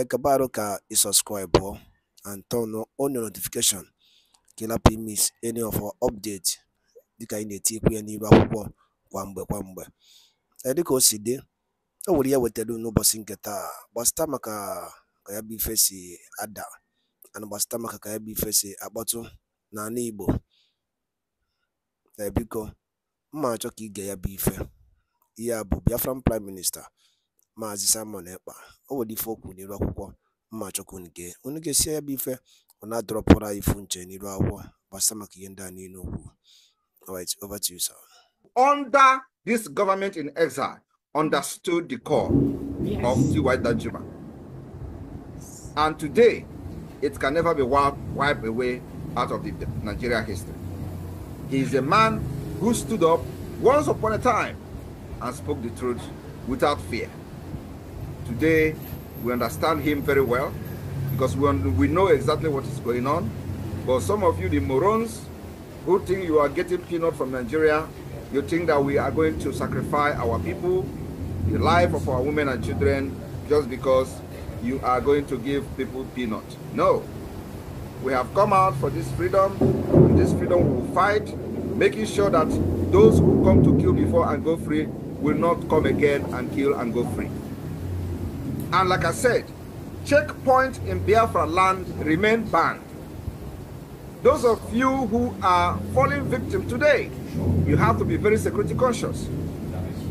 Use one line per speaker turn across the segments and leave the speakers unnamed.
acabar ka i subscribe and turn on your notification ka ị any of our update dịka anyị na-etikwu ya n'iru akwụkwọ kwa mgbe kwa mgbe dịka o si dị o nwere ya e wetara n'ụbọchị nke taa gbasịta maka ka ya bụ ife si ada ana gbasịta maka ka ya bụ ife si akpọtụ n'ala igbo ebiko mma achọ ka ige ya bụ ife ihe a bụ biafran prime minista Maazị Simon Ekpa o nwere ife o n'iru akwụkwọ mma chukwu nke unu ga-esi ya bụ ife ọ na-adọrọpụrụ anyị ifu nche n'iru akwụkwọ gbasa maka ihe ndị a niile okwu over to you sir under this
government in exile understood the call yes. of T.Y. Danjuma and today it can never be wiped away out of the Nigeria history he is a man who stood up once upon a time and spoke the truth without fear Today, we understand him very well because we know exactly what is going on. But some of you, the morons, who think you are getting peanut from Nigeria, you think that we are going to sacrifice our people, the life of our women and children, just because you are going to give people peanut. No. We have come out for this freedom, and this freedom we will fight, making sure that those who come to kill before and go free will not come again and kill and go free. And like I said, checkpoints in Biafra land remain banned. Those of you who are falling victim today, you have to be very security conscious.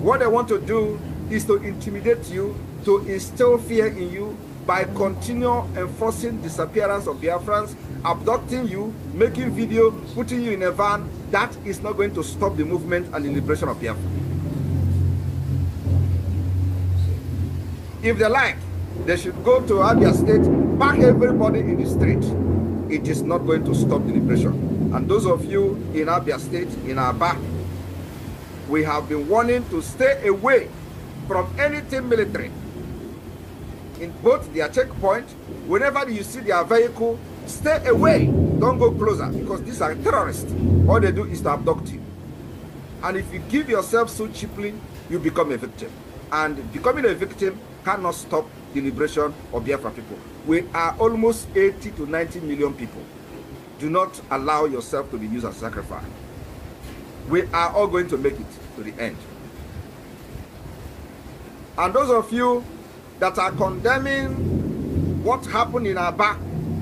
What they want to do is to intimidate you, to instill fear in you by continual enforcing disappearance of Biafrans, abducting you, making video, putting you in a van. That is not going to stop the movement and the liberation of Biafra. If they like, they should go to Abia State, pack everybody in the street. It is not going to stop the liberation. And those of you in Abia State, in back, we have been warning to stay away from anything military. In both their checkpoint, whenever you see their vehicle, stay away. Don't go closer because these are terrorists. All they do is to abduct you. And if you give yourself so cheaply, you become a victim. And becoming a victim cannot stop the liberation of Biafra people. We are almost 80 to 90 million people. Do not allow yourself to be used as sacrifice. We are all going to make it to the end. And those of you that are condemning what happened in Aba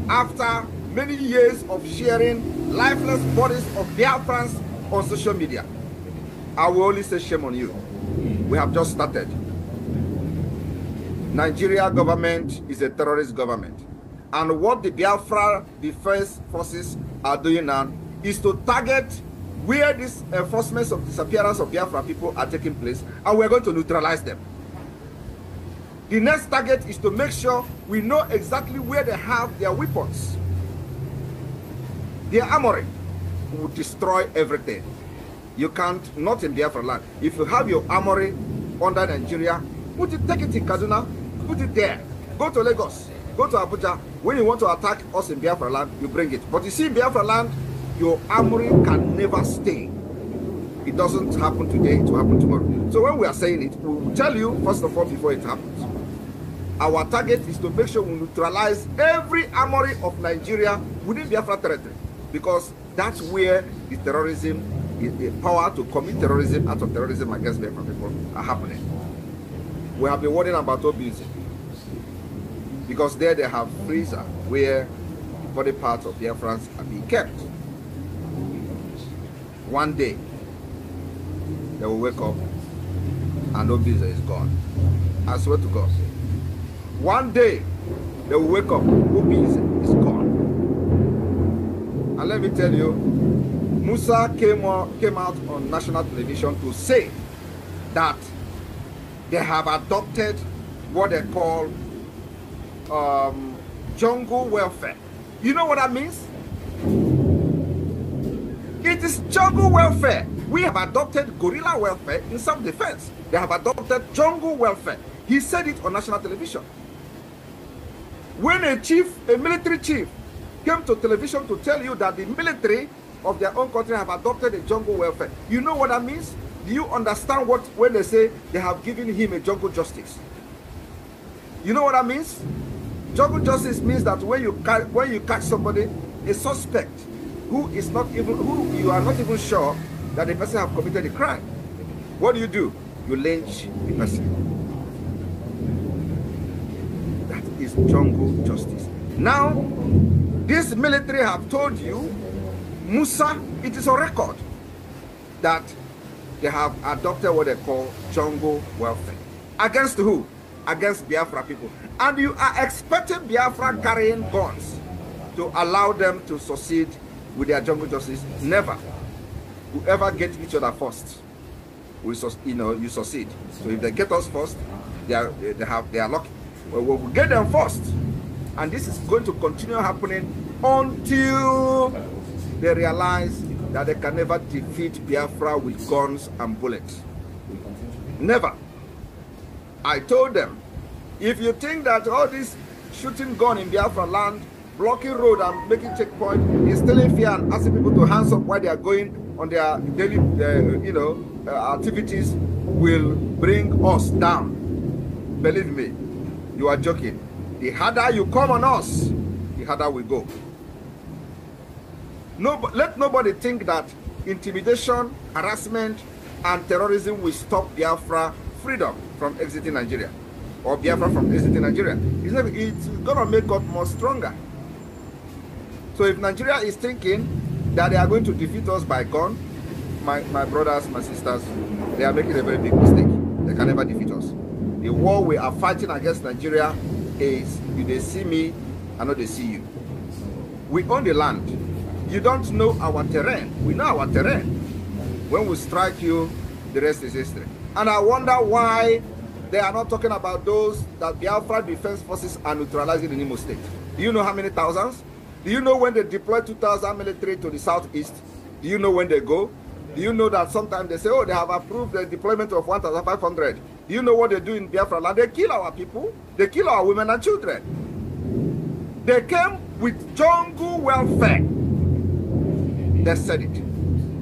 after many years of sharing lifeless bodies of Biafrans on social media, I will only say shame on you. We have just started. Nigeria government is a terrorist government. And what the Biafra Defense Forces are doing now is to target where these enforcements of disappearance of Biafra people are taking place, and we're going to neutralize them. The next target is to make sure we know exactly where they have their weapons. Their armory will destroy everything. You can't, not in Biafra land. If you have your armory under Nigeria, put it, take it in Kaduna, put it there. Go to Lagos, go to Abuja. When you want to attack us in Biafra land, you bring it. But you see, in Biafra land, your armory can never stay. It doesn't happen today, it will happen tomorrow. So when we are saying it, we will tell you, first of all, before it happens. Our target is to make sure we neutralize every armory of Nigeria within Biafra territory. Because that's where the terrorism, the power to commit terrorism, out of terrorism against Biafra people are happening. We have been warning about Obizi because there they have freezer where body parts of Biafrans are being kept. One day, they will wake up and Obizi is gone. I swear to God. One day, they will wake up, Obizi is gone. And let me tell you, Musa came came out on national television to say that they have adopted what they call um, jungle welfare. You know what that means? It is jungle welfare. We have adopted gorilla welfare in self-defense. They have adopted jungle welfare. He said it on national television. When a chief, a military chief, came to television to tell you that the military of their own country have adopted a jungle welfare, you know what that means? Do you understand what when they say they have given him a jungle justice? You know what that means? Jungle justice means that when you catch, when you catch somebody, a suspect who is not even who you are not even sure that the person have committed a crime, what do you do? You lynch the person. That is jungle justice. Now, this military have told you, Musa, it is a record that they have adopted what they call jungle welfare. Against who? Against Biafra people. And you are expecting Biafra carrying guns to allow them to succeed with their jungle justice. Never. Whoever gets each other first, we you know you succeed. So if they get us first, they are they have they are lucky. But we will get them first, and this is going to continue happening until they realize that they can never defeat Biafra with guns and bullets. Never. I told them, if you think that all this shooting gun in Biafra land, blocking road and making checkpoint, instilling fear and asking people to hands up while they are going on their daily, uh, you know, uh, activities will bring us down. Believe me, you are joking. The harder you come on us, the harder we go. No, let nobody think that intimidation, harassment, and terrorism will stop Biafra freedom from exiting Nigeria or Biafra from exiting Nigeria. It's, not, it's gonna make us more stronger. So if Nigeria is thinking that they are going to defeat us by gun, my, my brothers, my sisters, they are making a very big mistake. They can never defeat us. The war we are fighting against Nigeria is if they see me, I know they see you. We own the land. You don't know our terrain. We know our terrain. When we strike you, the rest is history. And I wonder why they are not talking about those that Biafra Defense Forces are neutralizing in Imo State. Do you know how many thousands? Do you know when they deploy 2,000 military to the southeast? Do you know when they go? Do you know that sometimes they say, oh, they have approved the deployment of 1,500? Do you know what they do in Biafra land? They kill our people. They kill our women and children. They came with jungle welfare that said it.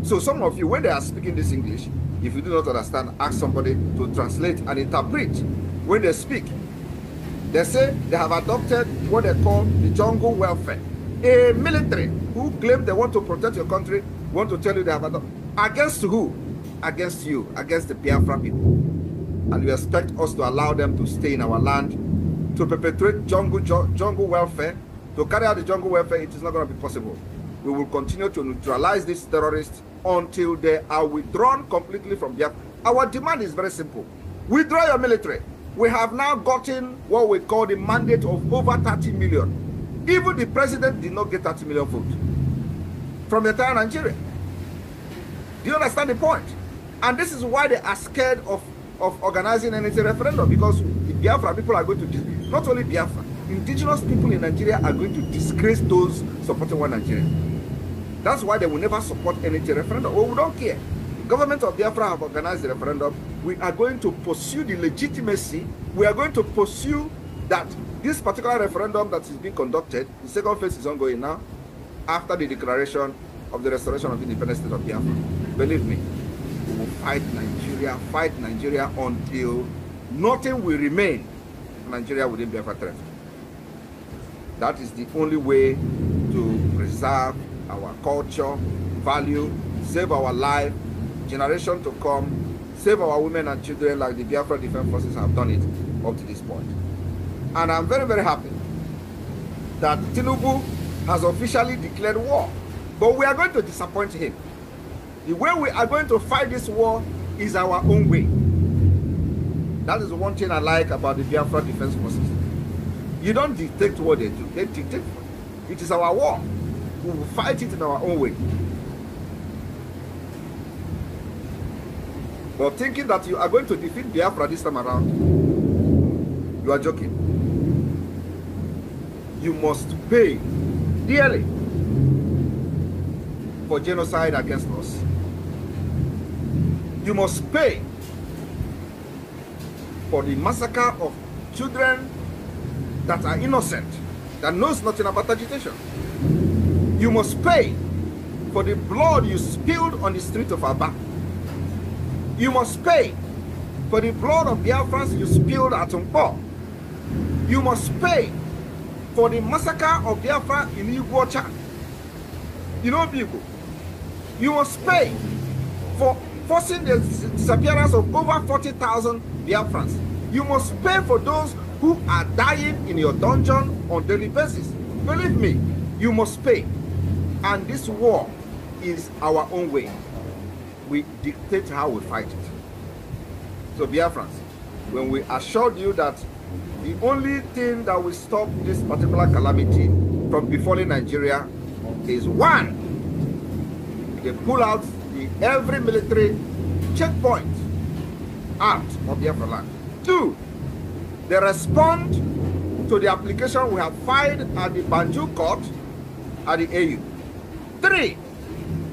So some of you, when they are speaking this English, if you do not understand, ask somebody to translate and interpret when they speak. They say they have adopted what they call the jungle welfare. A military who claim they want to protect your country want to tell you they have adopted. Against who? Against you, against the Biafra people. And you expect us to allow them to stay in our land, to perpetrate jungle, jungle welfare, to carry out the jungle welfare, it is not going to be possible. we will continue to neutralize these terrorists until they are withdrawn completely from Biafra. Our demand is very simple. Withdraw your military. We have now gotten what we call the mandate of over 30 million. Even the president did not get 30 million votes from the entire Nigeria. Do you understand the point? And this is why they are scared of, of organizing any referendum because the Biafra people are going to, not only Biafra, indigenous people in Nigeria are going to disgrace those supporting one Nigeria. That's why they will never support any referendum. Well, oh, we don't care. Government of Biafra have organized the referendum. We are going to pursue the legitimacy. We are going to pursue that this particular referendum that is being conducted, the second phase is ongoing now, after the declaration of the restoration of independence state of Biafra. Believe me, we will fight Nigeria, fight Nigeria until nothing will remain Nigeria within Biafra territory. That is the only way to preserve our culture, value, save our life, generation to come, save our women and children like the Biafra Defense Forces have done it up to this point. And I'm very, very happy that Tinubu has officially declared war. But we are going to disappoint him. The way we are going to fight this war is our own way. That is one thing I like about the Biafra Defense Forces. You don't dictate what they do, they dictate. It is our war. we will fight it in our own way. But thinking that you are going to defeat Biafra this time around, you are joking. You must pay dearly for genocide against us. You must pay for the massacre of children that are innocent, that knows nothing about agitation. You must pay for the blood you spilled on the street of Aba. You must pay for the blood of Biafrans you spilled at Nkpo. You must pay for the massacre of Biafra in Iguacha. You know, people, you must pay for forcing the disappearance of over 40,000 Biafrans. You must pay for those who are dying in your dungeon on daily basis. Believe me, you must pay. And this war is our own way. We dictate how we fight it. So, Biafrans, when we assured you that the only thing that will stop this particular calamity from befalling Nigeria is one, they pull out the every military checkpoint out of Biafra land. Two, they respond to the application we have filed at the Banjul court at the AU. Three,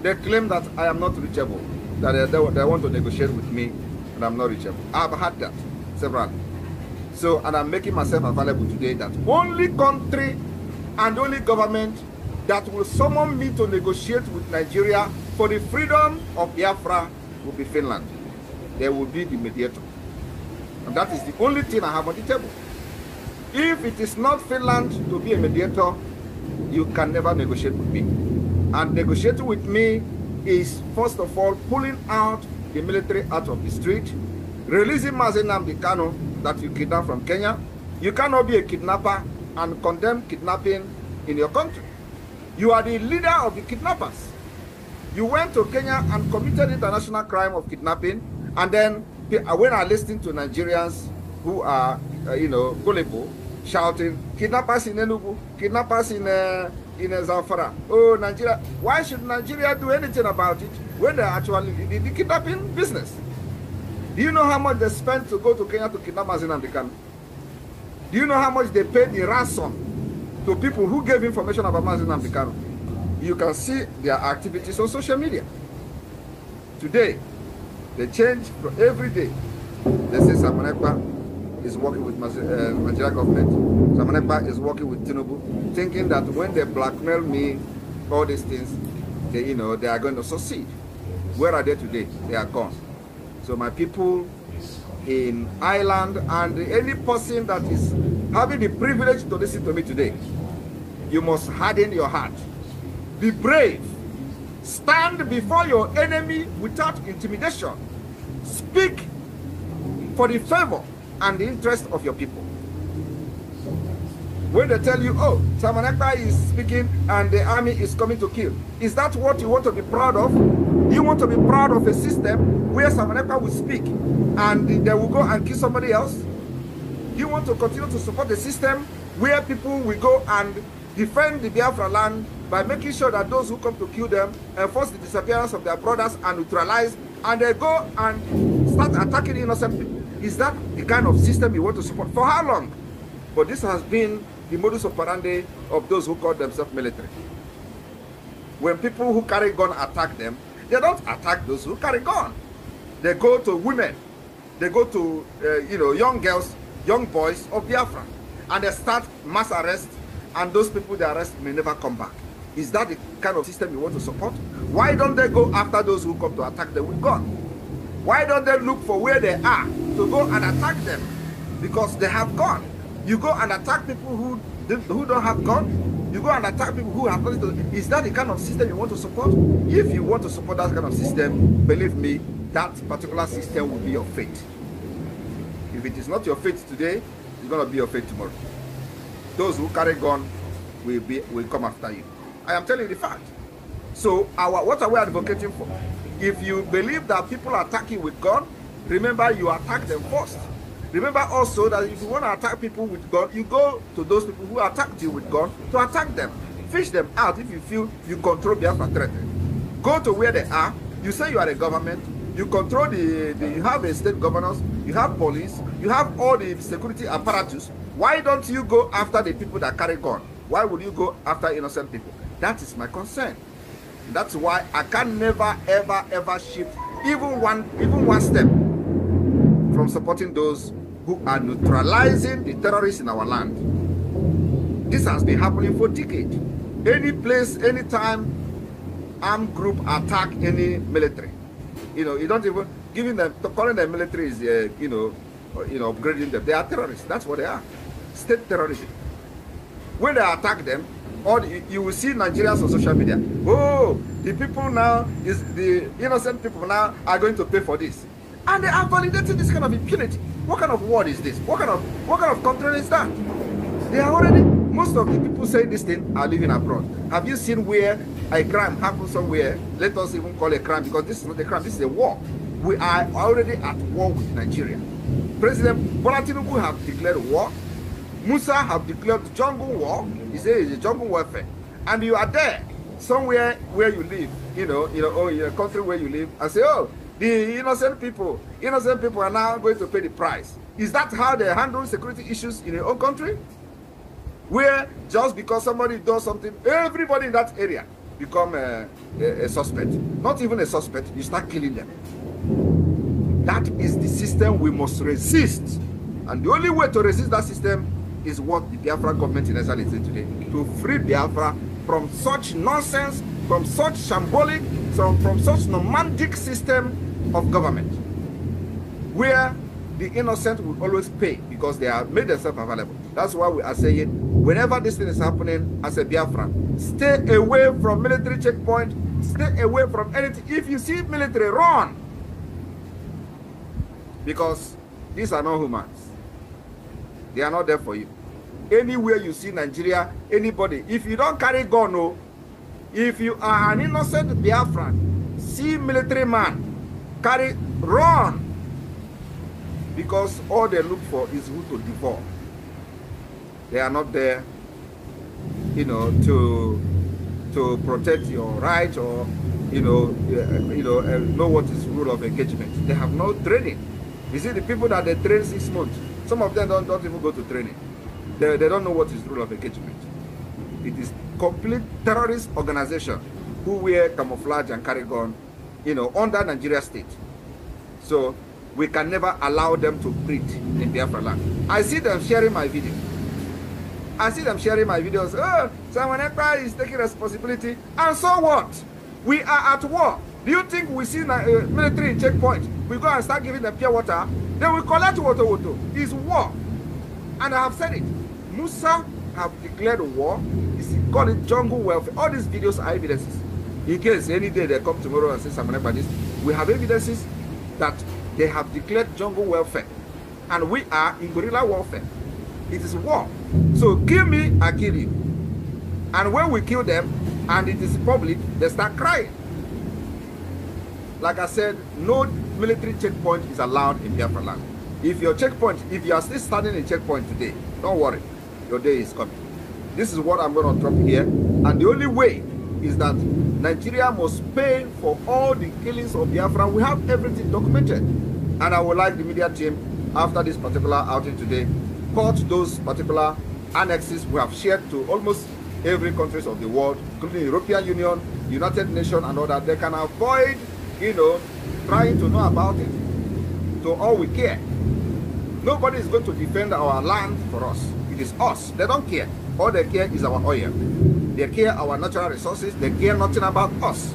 they claim that I am not reachable, that they, they, they want to negotiate with me and I'm not reachable. I've had that several. So, and I'm making myself available today that only country and only government that will summon me to negotiate with Nigeria for the freedom of Biafra will be Finland. They will be the mediator. And that is the only thing I have on the table. If it is not Finland to be a mediator, you can never negotiate with me. and negotiating with me is first of all pulling out the military out of the street, releasing Mazenam Dikano that you kidnapped from Kenya. You cannot be a kidnapper and condemn kidnapping in your country. You are the leader of the kidnappers. You went to Kenya and committed international crime of kidnapping, and then uh, when I listen to Nigerians who are, uh, you know, gullible, shouting, kidnappers in Enugu, kidnappers in uh, in Zamfara. Oh, Nigeria. Why should Nigeria do anything about it when they're actually in the kidnapping business? Do you know how much they spent to go to Kenya to kidnap Mazinam Dikano? Do you know how much they paid in ransom to people who gave information about Mazinam Dikano? You can see their activities on social media. Today, they change every day. They say Samanekpa is working with uh, Nigeria uh, government, Samanekpa is working with Tinubu, thinking that when they blackmail me, all these things, they, you know, they are going to succeed. Where are they today? They are gone. So my people in Ireland and any person that is having the privilege to listen to me today, you must harden your heart. Be brave. Stand before your enemy without intimidation. Speak for the favor and the interest of your people. When they tell you, oh, Samanaka is speaking and the army is coming to kill, is that what you want to be proud of? You want to be proud of a system where Samanaka will speak and they will go and kill somebody else? You want to continue to support the system where people will go and defend the Biafra land by making sure that those who come to kill them enforce the disappearance of their brothers and neutralize, and they go and start attacking innocent people. Is that the kind of system you want to support? For how long? But this has been the modus operandi of those who call themselves military. When people who carry gun attack them, they don't attack those who carry gun. They go to women, they go to uh, you know young girls, young boys of Biafra, and they start mass arrest, and those people they arrest may never come back. Is that the kind of system you want to support? Why don't they go after those who come to attack them with gun? Why don't they look for where they are to go and attack them? Because they have gone. You go and attack people who who don't have gun. You go and attack people who have gun. Is that the kind of system you want to support? If you want to support that kind of system, believe me, that particular system will be your fate. If it is not your fate today, it's going to be your fate tomorrow. Those who carry gun will be will come after you. I am telling you the fact. So our what are we advocating for? If you believe that people are attacking with God, remember you attack them first. Remember also that if you want to attack people with God, you go to those people who attacked you with God to attack them. Fish them out if you feel you control Biafra threat. Go to where they are. You say you are a government. You control the, the you have a state governors, you have police, you have all the security apparatus. Why don't you go after the people that carry gun? Why would you go after innocent people? That is my concern. That's why I can never, ever, ever shift even one, even one step from supporting those who are neutralizing the terrorists in our land. This has been happening for decades. Any place, any time, armed group attack any military. You know, you don't even giving them calling them military is uh, you know, uh, you know, upgrading them. They are terrorists. That's what they are, state terrorism. When they attack them, all you will see Nigerians on social media. Oh, the people now is the innocent people now are going to pay for this, and they are validating this kind of impunity. What kind of world is this? What kind of what kind of country is that? They are already most of the people saying this thing are living abroad. Have you seen where a crime happens somewhere? Let us even call a crime because this is not a crime. This is a war. We are already at war with Nigeria. President Bola Tinubu have declared war Musa have declared jungle war. He says it's a jungle warfare. And you are there, somewhere where you live, you know, you know, or in a country where you live, and say, oh, the innocent people, innocent people are now going to pay the price. Is that how they handle security issues in your own country? Where just because somebody does something, everybody in that area become a, a, a suspect. Not even a suspect, you start killing them. That is the system we must resist. And the only way to resist that system is what the Biafra government in Israel is doing today to free Biafra from such nonsense, from such shambolic, from, from such nomadic system of government where the innocent will always pay because they have made themselves available. That's why we are saying whenever this thing is happening as a Biafra, stay away from military checkpoint, stay away from anything. If you see military, run because these are not humans. They are not there for you. Anywhere you see Nigeria, anybody, if you don't carry gun, no, oh, if you are an innocent Biafran, see military man, carry, run. Because all they look for is who to devour. They are not there, you know, to to protect your right or you know, eh, you know, eh, know what is rule of engagement. They have no training. You see, the people that they train six months, some of them don't, don't even go to training. They, they don't know what is rule of engagement. It is complete terrorist organization who wear camouflage and carry gun, you know, under Nigeria state. So we can never allow them to breed in Biafra land. I see them sharing my video. I see them sharing my videos. Oh, someone is taking responsibility. And so what? We are at war. Do you think we see uh, military checkpoint? We go and start giving them pure water. Then we collect water, water. It's war. And I have said it. Musa have declared war. It's called it jungle welfare. All these videos are evidences. In case any day they come tomorrow and say something about this, we have evidences that they have declared jungle welfare. And we are in guerrilla warfare. It is war. So kill me, I kill you. And when we kill them, and it is public, they start crying. Like I said, no military checkpoint is allowed in Biafra land. If your checkpoint, if you are still standing in checkpoint today, don't worry, your day is coming. This is what I'm going to drop here. And the only way is that Nigeria must pay for all the killings of Biafra. We have everything documented. And I would like the media team, after this particular outing today, caught those particular annexes we have shared to almost every countries of the world, including European Union, United Nations, and all that. They can avoid you know, trying to know about it to all we care. Nobody is going to defend our land for us. It is us. They don't care. All they care is our oil. They care our natural resources. They care nothing about us.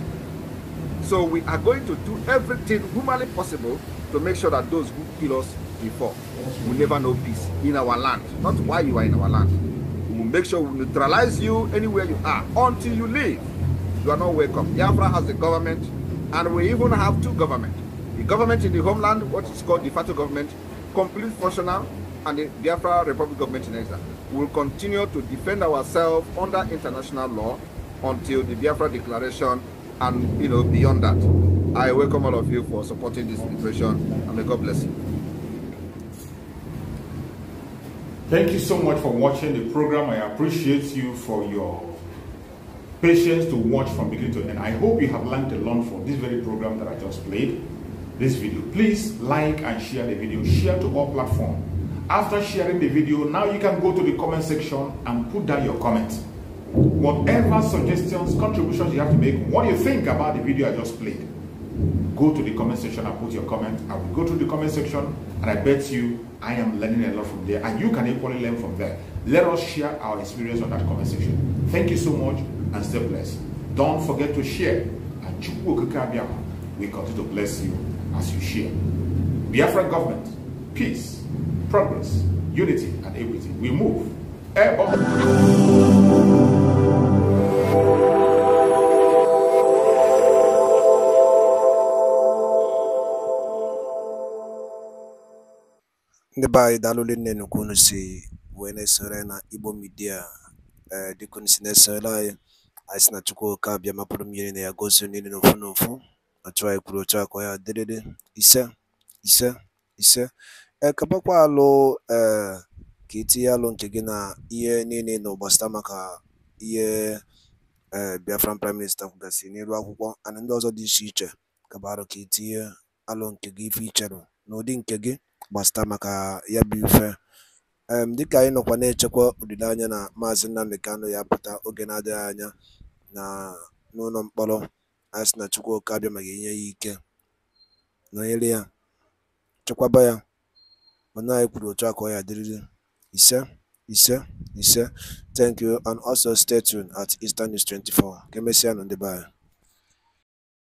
So we are going to do everything humanly possible to make sure that those who kill us before will never know peace in our land. Not why you are in our land. We will make sure we neutralize you anywhere you are until you leave. You are not welcome. Biafra has a government And we even have two governments. The government in the homeland, what is called the Fatu government, complete functional, and the Biafra Republic government in exile. We will continue to defend ourselves under international law until the Biafra declaration and you know beyond that. I welcome all of you for supporting this declaration and may God bless you. Thank you so much for watching the program. I appreciate you for your patience to watch from beginning to end. I hope you have learned a lot from this very program that I just played, this video. Please like and share the video. Share to all platforms. After sharing the video, now you can go to the comment section and put down your comments. Whatever suggestions, contributions you have to make, what you think about the video I just played, go to the comment section and put your comment. I will go to the comment section and I bet you I am learning a lot from there and you can equally learn from there. Let us share our experience on that comment section. Thank you so much and stay blessed. Don't forget to share. And we continue to bless you as you share. Biafra government, peace, progress, unity, and equity. We move.
ndị be anyị daalụle nne nnukwu unu si wee na-esore na igbo midia eh, dịka unu si na-esorela anyị na Chukwuka bịa mapụrụ na ya gosi niile n'ofu n'ofu otu anyị kwuru otu akọ ya dịrịrị ise ise ise ekabakwa eh, alụ ee eh, ka itinye alụ nke gị na ihe niile na ụgbasịta maka ihe ee eh, Biafran prime minista kwugasị n'elu akwụkwọ ana ndị ọzọ dị iche iche kaba arụ ka itinye alụ nke gị ife icherụ n'ụdị nke gị gbasịta maka ya bụ ife dịka anyị nọkwa na-echekwa olileanya na maazị Nnamdi Kanu ya pụta oge na-adịghị anya na n'ụlọ mkpọrọ a sị na Chukwuka abịaghị enye ya ike nọnyere ya chekwaba ya mana anyị kwuru otu a ka ọ ya dịrịrị ise ise ise thank you and also stay tuned at Eastern News 24 ka emesịa nụ ndị